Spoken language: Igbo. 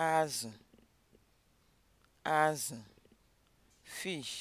azụ azụ fish